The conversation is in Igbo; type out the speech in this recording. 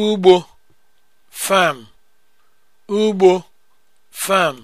ugbo farm ugbo farm